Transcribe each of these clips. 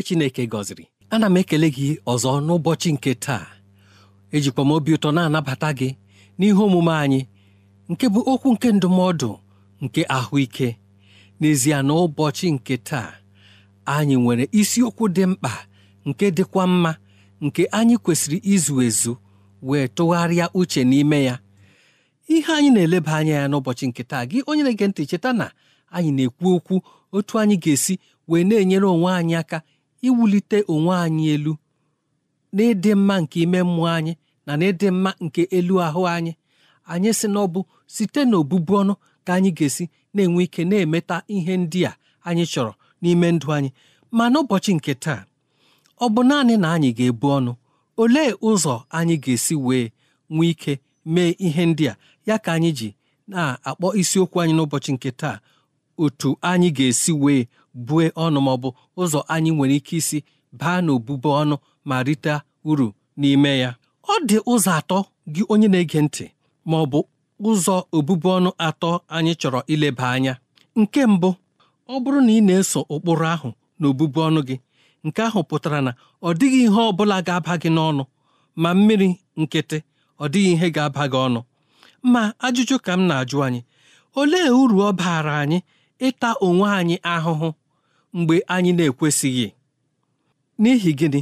onye Chineke gọziri ana m ekele gị ọzọ n'ụbọchị nke taa ejikwa m obi ụtọ na-anabata gị n'ihe omume anyị nke bụ okwu nke ndụmọdụ nke ahụike n'ezie na ụbọchị nke taa anyị nwere isiokwu dị mkpa nke dịkwa mma nke anyị kwesịrị izu ezu wee tụgharịa uche n'ime ya ihe anyị na-eleba anya ya n'ụbọchị nke taa gị onye na-ege ntị cheta na anyị na-ekwu okwu otu anyị ga-esi wee na-enyere onwe anyị aka iwulite onwe anyị elu n'ịdị mma nke ime mmụọ anyị na n'ịdị mma nke elu ahụ anyị anyị si na site n'obụbu ọnụ ka anyị ga-esi na-enwe ike na-emeta ihe ndị a anyị chọrọ n'ime ndụ anyị ma n'ụbọchị nke taa ọ bụ naanị na anyị ga-ebu ọnụ olee ụzọ anyị ga-esi wee nwee ike mee ihe ndị a ya ka anyị ji na-akpọ isiokwu anyị n'ụbọchị nke taa otu anyị ga-esi wee bue ọnụ bụ ụzọ anyị nwere ike isi baa n'obubu ọnụ ma rite uru n'ime ya ọ dị ụzọ atọ gị onye na-ege ntị ma ọ bụ ụzọ obubu ọnụ atọ anyị chọrọ ileba anya nke mbụ ọ bụrụ na ị na-eso ụkpụrụ ahụ na obubu ọnụ gị nke ahụ pụtara na ọ dịghị ihe ọ bụla ga-aba gị n'ọnụ ma mmiri nkịtị ọ dịghị ihe ga-aba gị ọnụ ma ajụjụ ka m na-ajụ anyị olee uru ọ baara anyị ịta onwe anyị ahụhụ mgbe anyị na-ekwesịghị n'ihi gịnị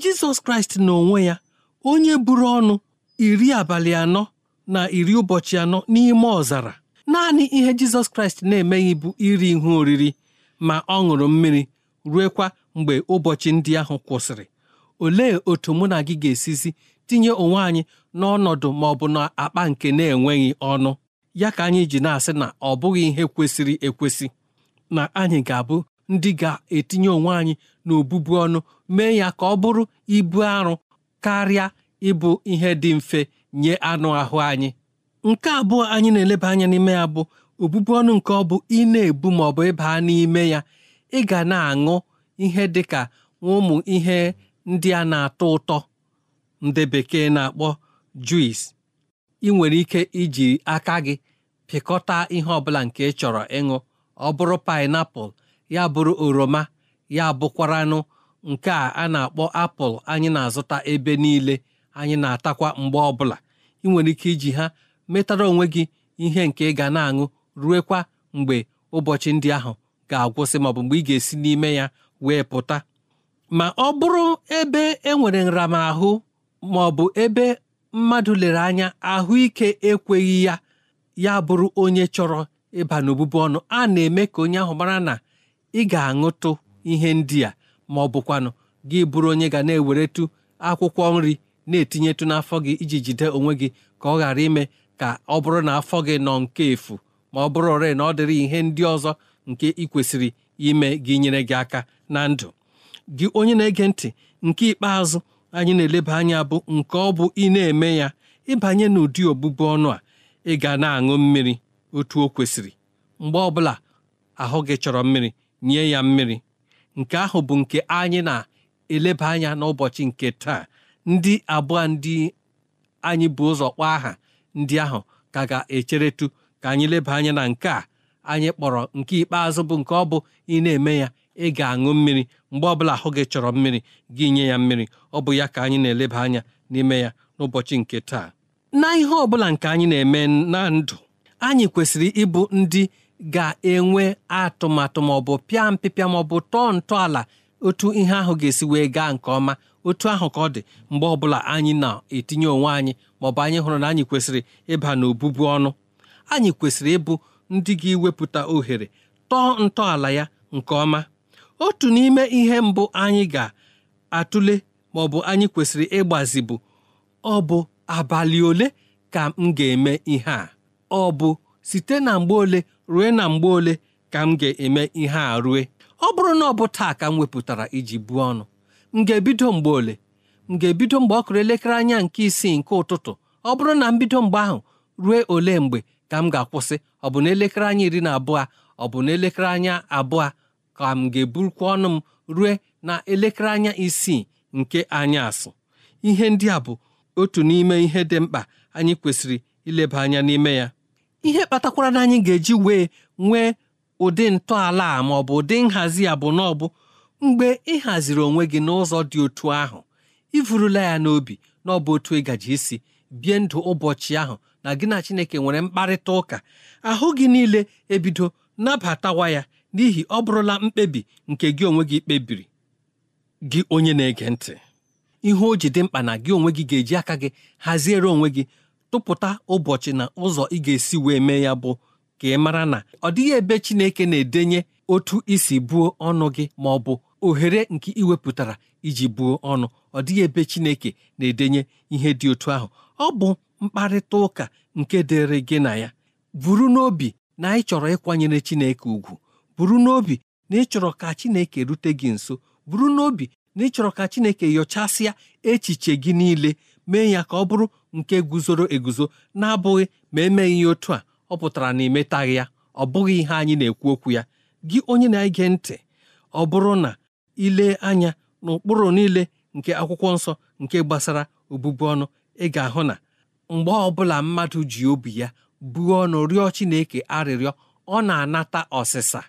jizọs kraịst n'onwe ya onye buru ọnụ iri abalị anọ na iri ụbọchị anọ n'ime ọzara naanị ihe jizọs kraịst na-emeghị bụ iri ihe oriri ma ọ ṅụrụ mmiri ruekwa mgbe ụbọchị ndị ahụ kwụsịrị olee otu mụ na gị ga-esizi tinye onwe anyị n'ọnọdụ ma ọ bụ na akpa nke na-enweghị ọnụ ya ka anyị ji na-asị na ọ bụghị ihe kwesịrị ekwesị na anyị ga-abụ ndị ga-etinye onwe anyị n'obubu ọnụ mee ya ka ọ bụrụ ibu arụ karịa ịbụ ihe dị mfe nye anụ ahụ anyị nke abụọ anyị na-eleba anya n'ime ya bụ obubu ọnụ nke ọ bụ ị na-ebu ma ọ bụ ịba n'ime ya ị ga na-aṅụ ihe dị ka ụmụ ihe ndị a na-atọ ụtọ ndị bekee na-akpọ juis ị nwere ike iji aka gị pịkọta ihe ọbụla nke ị chọrọ ịṅụ ọ bụrụ painapụl ya bụrụ oroma ya bụkwaranụ nke a a na-akpọ apụl anyị na-azụta ebe niile anyị na-atakwa mgbe ọbụla ị nwere ike iji ha metara onwe gị ihe nke ị ga na-aṅụ ruekwa mgbe ụbọchị ndị ahụ ga-agwụsị maọbụ mgbe ị ga-esi n'ime ya wee pụta ma ọ bụrụ ebe enwere nramahụ maọbụ ebe mmadụ lere anya ahụike ekweghị ya ya bụrụ onye chọrọ ịba n'obubu ọnụ a na-eme ka onye ahụ mara na ị ga-aṅụtụ ihe ndị a ma ọ bụkwanụ gị bụrụ onye ga na-eweretụ akwụkwọ nri na-etinyetụ n'afọ gị iji jide onwe gị ka ọ ghara ime ka ọ bụrụ na afọ gị nọ nke efu ma ọ bụrụ ọrịa na ọ dịrị ihe ndị ọzọ nke ị kwesịrị ime gị nyere gị aka na ndụ gị onye na-ege ntị nke ikpeazụ anyị na-eleba anya bụ nke ọ bụ ị na-eme ya ịbanye n'ụdị ọbụbụ ọnụ a ị ga na-aṅụ mmiri otu o kwesịrị mgbe ọbụla ahụ gị chọrọ mmiri nye ya mmiri nke ahụ bụ nke anyị na-eleba anya n'ụbọchị nke taa ndị abụọ ndị anyị bụ ụzọ kpọọ aha ndị ahụ ka ga-echeretu ka anyị leba anya na nke a anyị kpọrọ nke ikpeazụ bụ nke ọ bụ ị na-eme ya ị ga-aṅụ mmiri mgbe ọbụla ahụ gị chọrọ mmiri gị nye ya mmiri ọ bụ ya ka anyị na-eleba anya n'ime ya n'ụbọchị nke taa na ihe ọbụla nke anyị na-eme na ndụ anyị kwesịrị ịbụ ndị ga-enwe atụmatụ maọbụ pịa mpịpịa maọbụ tọọ ntọala otu ihe ahụ ga-esi wee gaa nke ọma otu ahụ ka ọ dị mgbe ọbụla anyị na-etinye onwe anyị maọbụ anyị hụrụ na anyị kwesịrị ịba n'obubu ọnụ anyị kwesịrị ịbụ ndị ga-ewepụta ohere tọọ ntọala ya nke ọma otu n'ime ihe mbụ anyị ga-atụle maọbụ anyị kwesịrị ịgbazi bụ ọ bụ abalị ole ka m ga-eme ihe a ọ bụ site na mgbe ole rue na mgbe ole ka m ga-eme ihe a rue ọ bụrụ na ọ bụ taa ka m wepụtara iji buo ọnụ m ga-ebido mgbe ole m ga-ebido mgbe ọ kụrụ elekere anya nke isii nke ụtụtụ ọ bụrụ na m bido mgbe ahụ rue ole mgbe ka m ga-akwụsị ọ bụ na elekere anya iri na abụọ ọ bụ na elekere anya abụọ ka m ga-eburukwa ọnụ m rue na elekere anya isii nke asụ. ihe ndị a bụ otu n'ime ihe dị mkpa anyị kwesịrị ileba anya n'ime ya ihe kpatakwara na anyị ga-eji wee nwee ụdị ntọala ma ọ bụ ụdị nhazi ya bụ na ọ bụ mgbe ị haziri onwe gị n'ụzọ dị otu ahụ ịvụrụla ya n'obi na ọ bụ otu ịgaji isi bie ndụ ụbọchị ahụ na gị na Chineke nwere mkparịta ụka ahụ gị niile ebido nabatawa ya n'ihi ọ bụrụla mkpebi nke gị onwe gị kpebiri gị onye na-ege ntị ihe o ji dị mkpa na gị onwe gị ga-eji aka gị haziere onwe gị tụpụta ụbọchị na ụzọ ị ga-esi wee mee ya bụ ka ị mara na ọ dịghị ebe Chineke na-edenye otu isi buo ọnụ gị ma ọ bụ ohere nke ị iji buo ọnụ ọ dịghị ebe Chineke na-edenye ihe dị otu ahụ ọ bụ mkparịta ụka nke dịrị gị na ya buru n'obi na anyị chọrọ ịkwanyere Chineke ugwu buru n'obi na ịchọrọ ka Chineke rute gị nso buru n'obi na ịchọrọ ka Chineke nyochasịa echiche gị niile mee ya ka ọ bụrụ nke guzoro eguzo na-abụghị ma emeghị ihe otu a ọ pụtara na imetaghị ya ọ bụghị ihe anyị na-ekwu okwu ya gị onye na-ege ntị ọ bụrụ na ile anya n'ụkpụrụ niile nke akwụkwọ nsọ nke gbasara obụbu ọnụ ị ga-ahụ na mgbe ọbụla mmadụ ji obi ya buo ọnụ rịọ Chineke arịrịọ ọ na-anata ọsịsa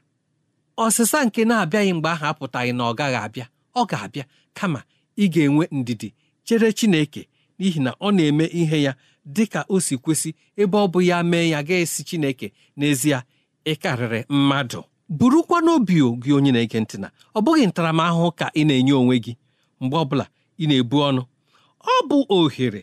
ọsịsa nke na-abịaghị mgbe ahụ apụtaghị na ọ gaghị abịa ọ ga-abịa kama ị ga-enwe ndidi chere Chineke n'ihi na ọ na-eme ihe ya dị ka o si kwesị ebe ọ bụ ya mee ya ga-esi Chineke n'ezie ị karịrị mmadụ burukwa n'obi gị onye na-ege ntị na ọ bụghị ntaramahụhụ ka ị na-enye onwe gị mgbe ọbụla ị na-ebu ọnụ ọ bụ ohere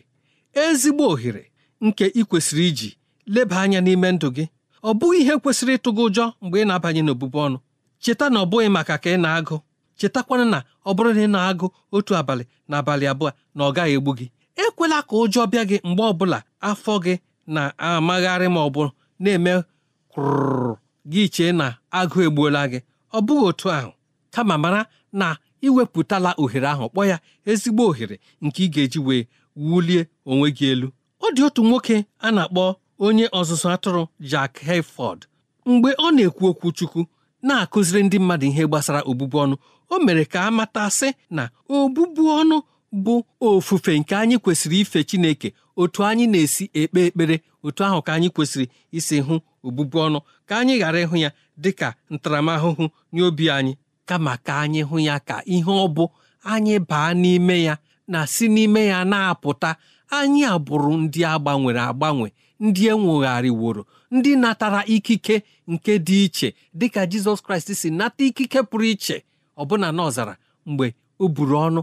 ezigbo ohere nke ị kwesịrị iji leba anya n'ime ndụ gị ọ bụghị ihe kwesịrị ịtụgị ụjọ mgbe ị na-abanye n'obubu ọnụ cheta na ọ bụghị maka ka ị na-agụ chetakwana na ọ bụrụ na ị na-agụ otu abalị na abalị abụọ na ọ gaghị egbu gị ekwela ka ụjọ bịa gị mgbe ọbụla afọ gị na-amagharị ma ọ bụ na-eme kwụrụ gị chee na agụụ egbuola gị ọ bụghị otu ahụ kama mara na iwepụtala ohere ahụ kpọọ ya ezigbo ohere nke ị ga-eji wee wulie onwe gị elu ọ dị otu nwoke a na-akpọ onye ọzụzụ atụrụ Jack Hayford mgbe ọ na-ekwu okwu Chukwu na-akụziri ndị mmadụ ihe gbasara obụbu ọnụ o mere ka a mata sị na obubu ọnụ bụ ofufe nke anyị kwesịrị ife Chineke otu anyị na-esi ekpe ekpere otu ahụ ka anyị kwesịrị isi hụ obụbu ọnụ ka anyị ghara ịhụ ya dị ka ntaramahụhụ nye obi anyị kama ka anyị hụ ya ka ihe ọ bụ anyị baa n'ime ya na si n'ime ya na-apụta anyị abụrụ ndị agbanwere agbanwe ndị enwogharịworo ndị natara ikike nke dị iche dịka Jizọs Kraịst si nata ikike pụrụ iche ọbụna n'ọzara mgbe o buru ọnụ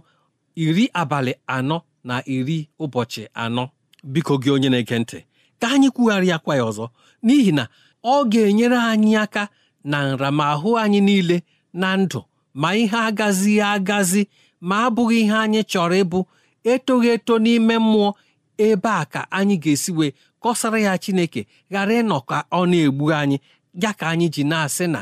iri abalị anọ na iri ụbọchị anọ biko gị onye na-ege ntị ka anyị kwugharị ya ọzọ n'ihi na ọ ga-enyere anyị aka na nra ma nramahụ anyị niile na ndụ ma ihe agazi agazi ma abụghị ihe anyị chọrọ ịbụ etoghị eto n'ime mmụọ ebe a ka anyị ga-esi wee kọsara ya Chineke ghara ịnọ ka ọ na-egbu anyị ya ka anyị ji na-asị na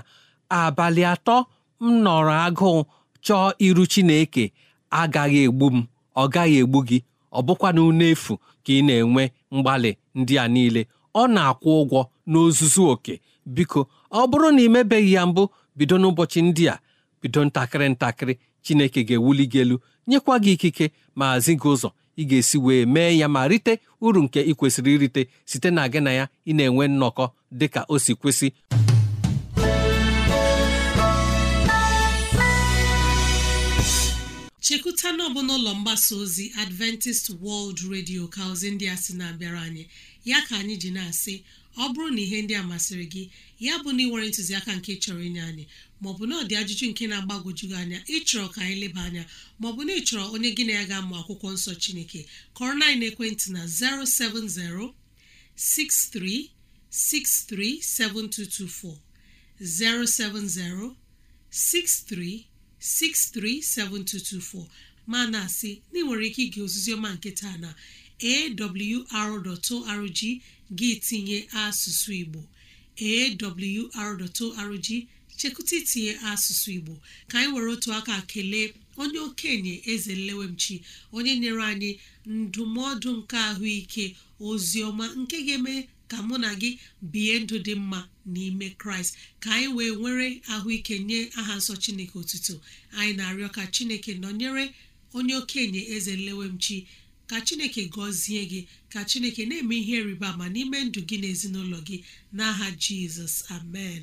abalị atọ m nọrọ agụụ chọọ iru Chineke agaghị egbu m ọ gaghị egbu gị ọ bụkwanụ n'efu ka ị na-enwe mgbalị ndị a niile ọ na-akwụ ụgwọ n'ozuzu oke biko ọ bụrụ na ị mebeghị ya mbụ bido n'ụbọchị ndị a bido ntakịrị ntakịrị chineke ga-ewuli gị elu nyekwa gị ikike ma zi gị ụzọ ị ga-esi wee mee ya ma rite uru nke ị kwesịrị irite site na gị na ya ị na-enwe nnọkọ dịka o si kwesị chekwuta na ọbụ n'ụlọ mgbasa ozi adventist world radio ka ozi ndị a sị na-abịara anyị ya ka anyị ji na-asị ọ bụrụ na ihe ndị a masịrị gị ya bụ na ị nwere ntụziaka nke chọrọ inye anyị maọbụ na ọ dị ajụjụ nke na-agbagwoju anya ịchọrọ ka anyị leba anya maọbụ na ịchọrọ onye gị na ya ga-amụ akwụkwọ nsọ chineke kọrọ na ekwentị na 17063637224 07063 637224 ma na-asị na ị nwere ike ige ọma nke taa na awr.org gị tinye asụsụ Igbo awr.org chekụta itinye asụsụ Igbo ka anyị were otu aka kelee onye okenye eze nlewemchi onye nyere anyị ndụmọdụ nke ahụike ozi ọma nke ga-eme ka mụ na gị bie ndụ dị mma n'ime kraịst ka anyị wee nwere ahụike nye aha nsọ chineke otuto anyị na-arịọ ka chineke nọnyere onye okenye eze nlewemchi ka chineke gọzie gị ka chineke na-eme ihe rịba ma n'ime ndụ gị na gị n'aha jizọs amen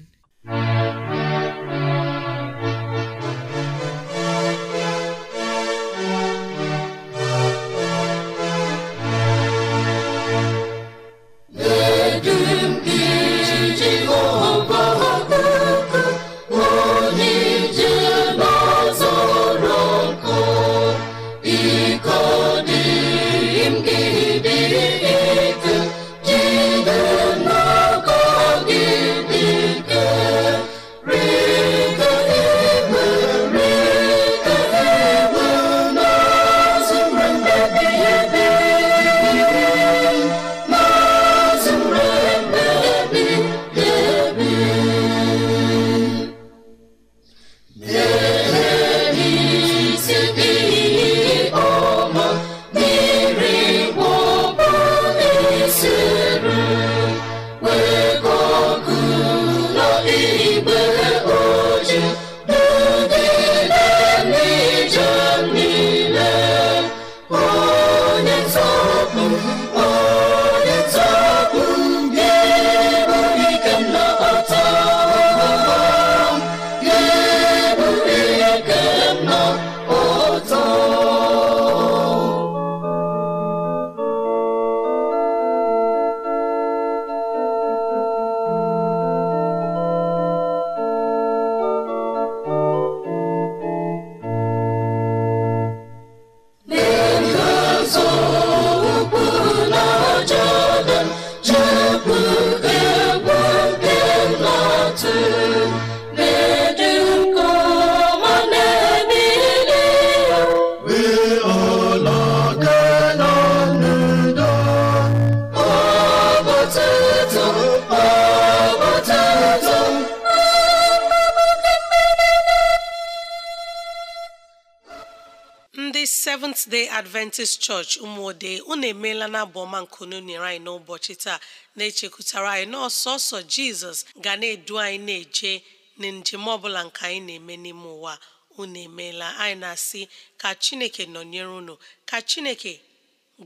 adventist church ụmụode unu emeela na abụ ọma unu nyere anyị n'ụbọchị taa na-echekwutara anyị na ọsọsọ jizọs ga na-edu anyị na-eje na njem ọbụla nke anyị na-eme n'ime ụwa unu emeela anyị na-asị ka chineke nọnyere unu ka chineke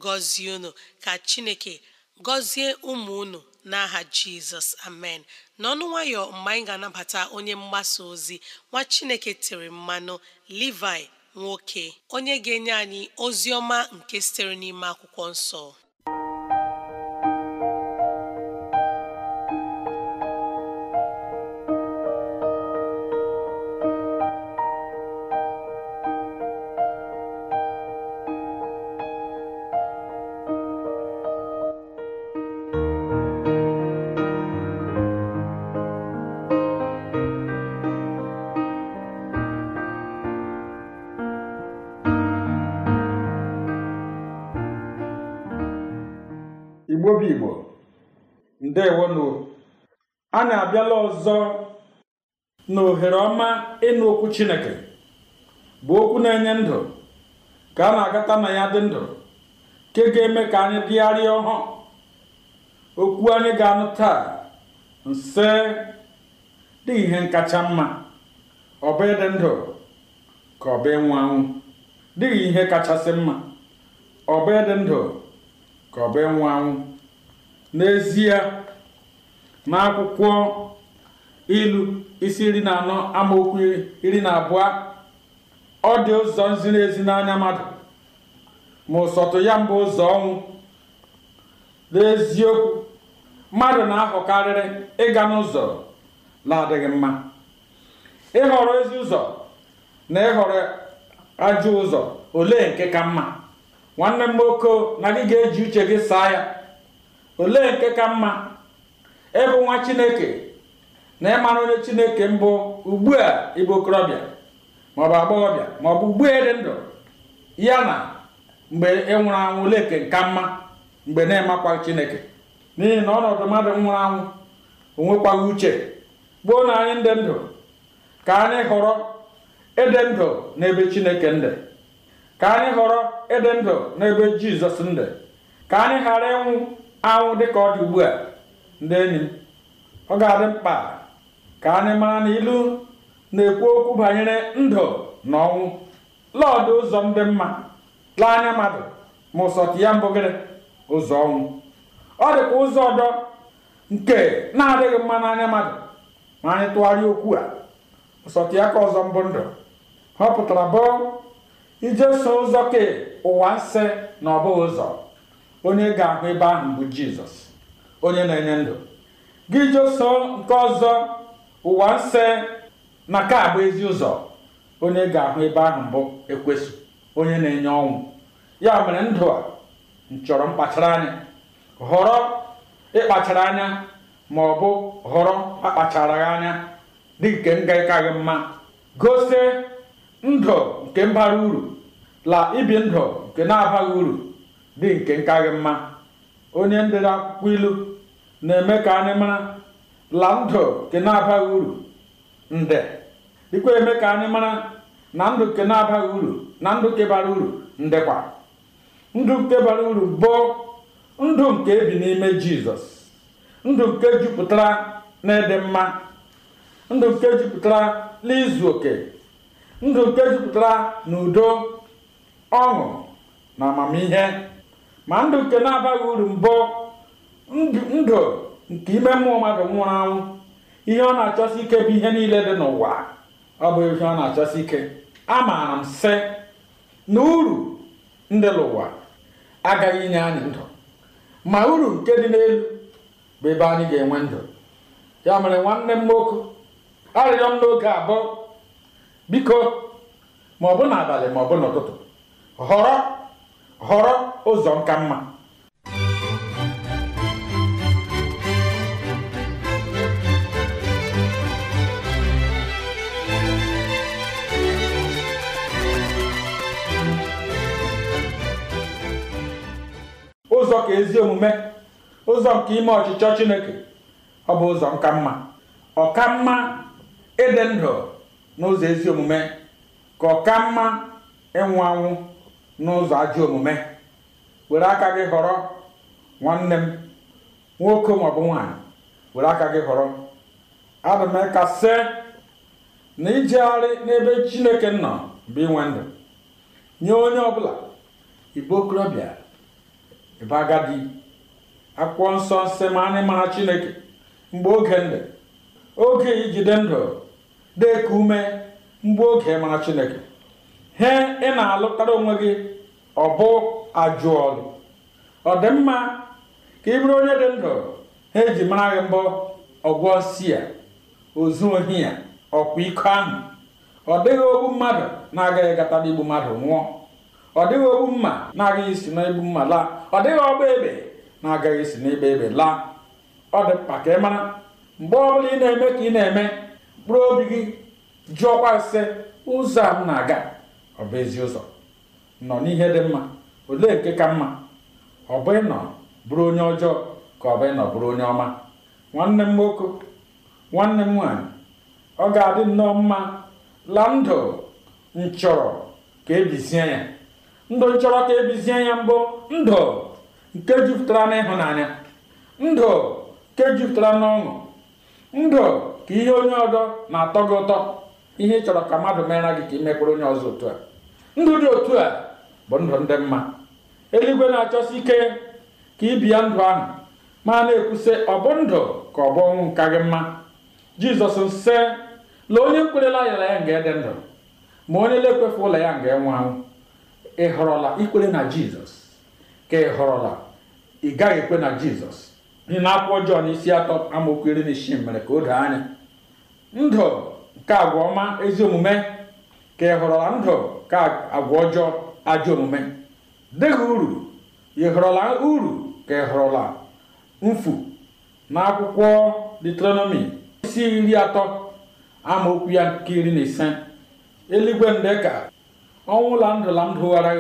gọzie unu ka chineke gọzie ụmụ unu n'aha jizọs amen n'ọnụ nwayọ mgbe anyị ga-anabata onye mgbasa ozi nwa chineke tiri mmanụ livi nwoke onye ga-enye anyị ozi ọma nke sitere n'ime akwụkwọ nsọ na abịala ọzọ na ohere ọma ịnụ okwu chineke bụ okwu na-enye ndụ ka a na-agata na ya dị ndụ nke ga-eme ka anyị dịgharịa ọhụụ okwu anyị ga-anụ taa nse dị ihe nkacha mma ọ ịdị ndụ ka ọ ịnwụ anwụ dịghị ihe kachasị mma ọ bụ ịdị ndụ ka ọ bụ ịnwụ anwụ n'ezie n'akwụkwọ ilu isi iri na anọ amaokwu iri na abụọ ọ dị ụzọ ziri ezi n'anya mmadụ ma ụsọtụ ya mbụ ụzọ ọnwụ n'eziokwu mmadụ na-ahọkarịrị ịga n'ụzọ na-adịghị mma ịhọrọ ezi ụzọ na ịhọrọ ajọ ụzọ ole nke ka mma nwanne m nwoke na gị ga-eji uche gị saa ya olee nke ka mma ịbụ nwa chineke na ịmara onye chineke mbụ ugbu a ịbụ okorobịa maọbụ agbọghọbịa maọbụ ugbu a dị ndụ ya na mgbe ị anwụ leke nka mma mgbe na-emakwa chineke n'ihi na ọnọdụ mmadụ nwụrụ anwụ onwekwaghị uche gboo na anyị ndị ndụ ka anyị họrọ ịdị ndụ n'ebe chineke ndị ka anyị họrọ ịdị ndụ n'ebe jizọs ndị ka anyị ghara ịnwụ anwụ ka ọ dị ugbu a ndị enyi m ọ ga-adị mkpa ka anyị mara na ilu na-ekwu okwu banyere ndụ na ọnwụ lọdụ ụzọ dị mma lee anya mmadụ ma ụsọtụ ya mbụ gịrị ụzọ ọnwụ ọ dịkwa ụzọ ọdọ nke na-adịghị mma n'anya mmadụ ma anyị tụgharịa okwu a ụsọtụ ya ka ọzọ mbụ ndụ ọ pụtara bụ ije so ụzọ kee ụwa nsị na ọ bụghị ụzọ onye ga-ahụ ebe ahụ bụ jizọs onye na-enye ndụ gị jeso nke ọzọ ụwa nse na ka abụ ezi ụzọ onye ga-ahụ ebe ahụ mbụ ekwesị onye na-enye ọnwụ ya mere ndụ a nchọrọ mkpachara anya họrọ ịkpachara anya ma ọ bụ họrọ akpacharaghị anya dị nke ngaịkaghị mma gosi ndụ nke mbara uru la ibi ndụ nke na-abaghị uru dị nke nkaghị mma onye ndere akwụkwọ ilu na-eme ka anyị mara la ndụ ke na-abaghị uru nde dịkwa eme ka anyị mara na ndụ ke na-abaghị uru na ndụ nke bara uru ndekwa ndụ kebara bara uru bụ ndụ nke ebi n'ime jizọs ndụ nke jupụtara na ịdị mma ndụ nke jupụtara n'izu oke ndụ nke jupụtara na udo ọṅụ na amamihe ma ndụ nke na-abaghị uru mbụ ndụ nke ime mmụọ mmadụ nwụrụ anwụ ihe ọ na-achọsi ike bụ ihe niile dị n'ụwa ọ bụ ihe ọ na-achọsi ike amaara m sị na uru ndị n'ụwa agaghị inye anyị ndụ ma uru nke dị n'elu bụ ebe anyị ga-enwe ndụ ya mere nwanne m nwoke arịrịọ m n'oge abụọ biko ma ọ bụ n'abalị ma ọ bụ n'ụtụtụ họrọ họrọ ụzọ nka mma ụzọ ka ezi omume ụzọ nke ime ọchịchọ chineke ọ bụ ụzọ nka mma ọka mma ịdị ndụ n'ụzọ ezi omume ka ọka mma ịnwụ anwụ n'ụzọ ajọ omume were aka gị họrọ nwanne m nwoke maọbụ nwaanyị were aka gị họrọ adị m kasị na ijegharị n'ebe chineke nọ bụ inwe ndụ nye onye ọbụla igbo okorobịa ebe agadi nsọ nsị ma anyị mara chineke mgbe oge ndụ oge ijide ndụ ka ume mgbe oge mara chineke he ị na-alụtara onwe gị ọ bụ ajụ ọdịmma ọ dị ka ị bụrụ onye dị ndụ ha eji mara gị mbụ ọgwọ si ya ozu ohi ya ọkwa iko ahụ ọ dịghị ogbu mmadụ na-agaghị gata n'igbu mmadụ nwụọ ọ dịghị ogbu mma na-agaghị isi n'egbu mma laa ọ dịghị ọgba ebe na-agaghị isi n'egbe ebe laa ọ dị mkpa ka ị mara mgbe ọ bụla ị na-eme ka ị na-eme mkpụrụ obi gị jụọkwa ise ụzọ a m na-aga ọ bụ ezi ụzọ nọ n'ihe dị mma olee nke ka mma ọ bụ ịnọ bụrụ onye ọjọọ ka ọ bụ ịnọ bụrụ onye ọma nwanne m nwoke nwanne m nwaanyị ọ ga-adị nnọọ mma la ndụ m chọrọ ka ebizie ya ndụ nchọrọ ka ebizie ya mbụ ndụ nke jupụtara n'ịhụnanya ndụ nke jupụtara n'ọṅụ ndụ ka ihe onye ọdọ na-atọ gị ụtọ ihe ị chọrọ ka mmadụ mere gị ka imekwere onye ọzọ otu a ndụ dị otu a bụ ndụ ndị mma eluigwe na-achọsi ike ka ị ndụ ahụ ma na-ekwusị ọ bụ ndụ ka ọ bụ ọnwụ nka gị mma jizọs nse lee onye kwerela ayara ya nga dị ndụ ma onye na-ekwefe ụlọ ya nga enwe anwụ ị họrọla ikwere na jizọs ka ị họrọla ị gaghị ekwe na jizọs ị na-akwụkwọ jọn isi atọ amaokwu iri na isii mere ka o doo anya ndụ nke agwa ọma ezi omume ka ị họrọla ndụ ka agwa ọjọọ ajọ omume dịghị uru ị họrọla uru ka ị họrọla mfu na akwụkwọ detronomi isi iri atọ amaokwu ya nke iri na ise eluigwe ndeka ọnwụ la ndụ la ndụ dụghara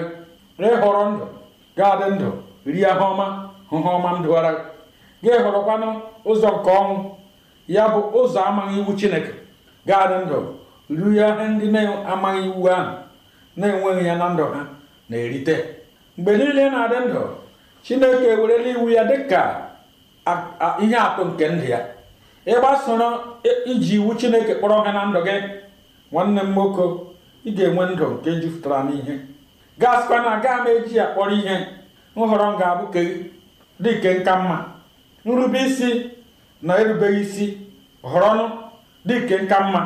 gị ịhọrọ ndụ gaadị ndụ rie ha ọma hụ ha ọma m dụghara gị gị ụzọ nke ọnwụ ya bụ ụzọ amaghị iwu chineke gaadị ndụ rie ihe ndị na-amaghị iwu ahụ na-enweghị ya na ndụ ha na-erite mgbe niile na-adị ndụ chineke ewerela iwu ya ka ihe atụ nke ndụ ya ịgbasoro iji iwu chineke kpọrọ ha na ndụ gị nwanne m nwoke ị ga-enwe ndụ nke jupụtara n'ihe gaasịkwa na aga m eji ya kpọrọ ihe nhọrọ m ga-abụ dịke nka mma nrube isi na erubeghị isi họrọnụ dịke nka mma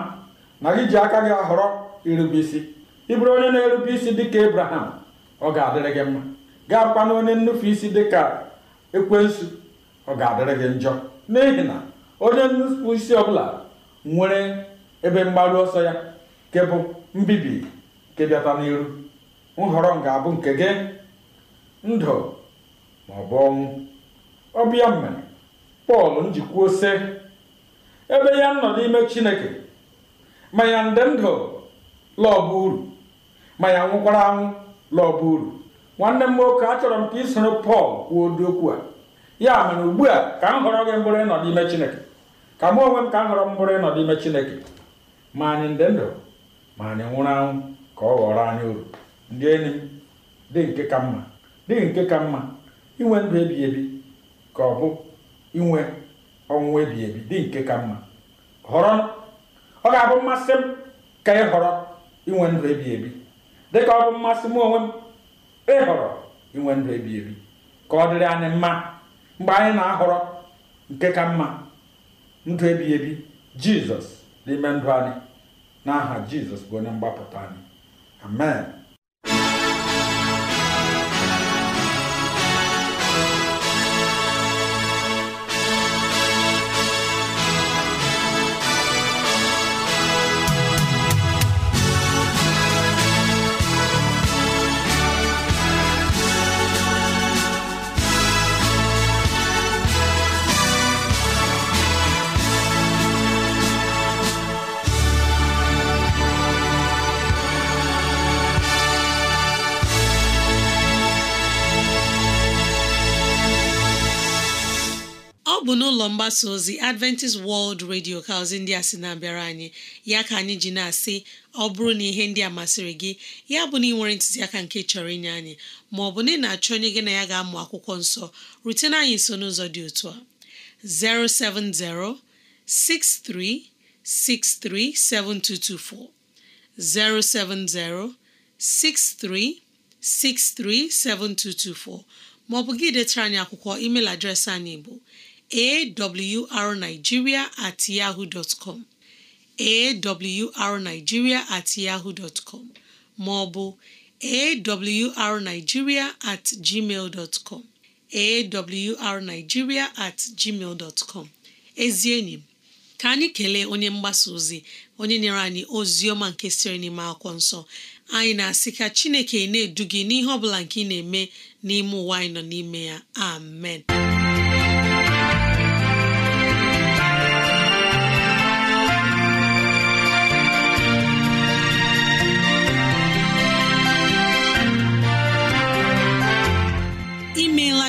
na gị ji aka gị họrọ irube isi ị bụrụ onye na-erube isi dịka ebraham ọ ga-adịrị gị mma gaa kwana onye nnufu isi dịka ekwensu ọ ga-adịrị gị njọ n'ihi na onye nnufu isi ọbụla nwere ebe mgbaru ọsọ ya nke bụ mbibi nke bịata n'iru nhọrọ m ga-abụ nke gị ndụ ma ọ bụ ọnwụ ọbịa mere pọl njikwuo sị ebe ya nọ n'ime chineke ma ya nde ndụ lọọ uru ma ya nwụkwara anwụ lọọ uru nwanne m nwoke achọrọ m ka isoro pọl kwuo ụdị okwu a ya mere ugbu a ka m họrọ gị mbụrụ ịnọ n'ime chineke ka m onwe m ka m họrọ m mbụrụ ịnọ n'ime chineke ma anyị ndị ndụ ma anyị nwụrụ anwụ ka ọ ghọrọ anyị uru ndị enyi dị nke ka mma dị nke ka mma inwe ndụ ebi ka ọ bụ inwe ọnwụ ebi dị nke ka mma họrọ ọ ga-abụ mmasị m ka ị họrọ inwe ndụ ebi dị ka ọ bụ mmasị m onwe m ịhọrọ inwe ndụ ebi ka ọ dịrị anyị mma mgbe anyị na-ahọrọ nke ka mma ndụ ebi jizọs n'ime ndụ anyị n'aha Jizọs bụ onye mgbapụta anyị amen mgbasa ozi adventist world radio ka ozi ndị a sị na-abịara anyị ya ka anyị ji na-asị ọ bụrụ na ihe ndị a masịrị gị ya bụ na ị nwere ntụziaka nke chọrọ inye anyị ma ọ bụ na ị na-achọ onye gị na ya ga-amụ akwụkwọ nsọ rutena anyị nso n'ụzọ dị otu a 070 07063637224 ma ọ bụ gị detara anyị akwụkwọ email adreesị anyị bụ awrnigeria at yahoo dot com awrnigeria at yahoo dot com ma awrnigeria at gmail dot com awrnigeria at gmail com ezi enyi m ka anyị kelee onye mgbasa ozi onye nyere anyị ozi ọma nke siri n'ime akwụkwọ nsọ anyị na-asị ka Chineke na-edu gị n'ihe ọ bụla nke ị na-eme n'ime ụwa anyị nọ n'ime ya amen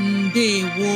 ndewo